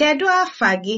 Kedụ afa gị?